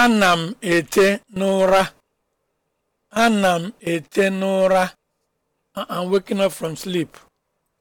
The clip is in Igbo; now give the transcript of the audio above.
Ana m ete n'ụra. Ana m ete n'ụra. I'm waking up from sleep.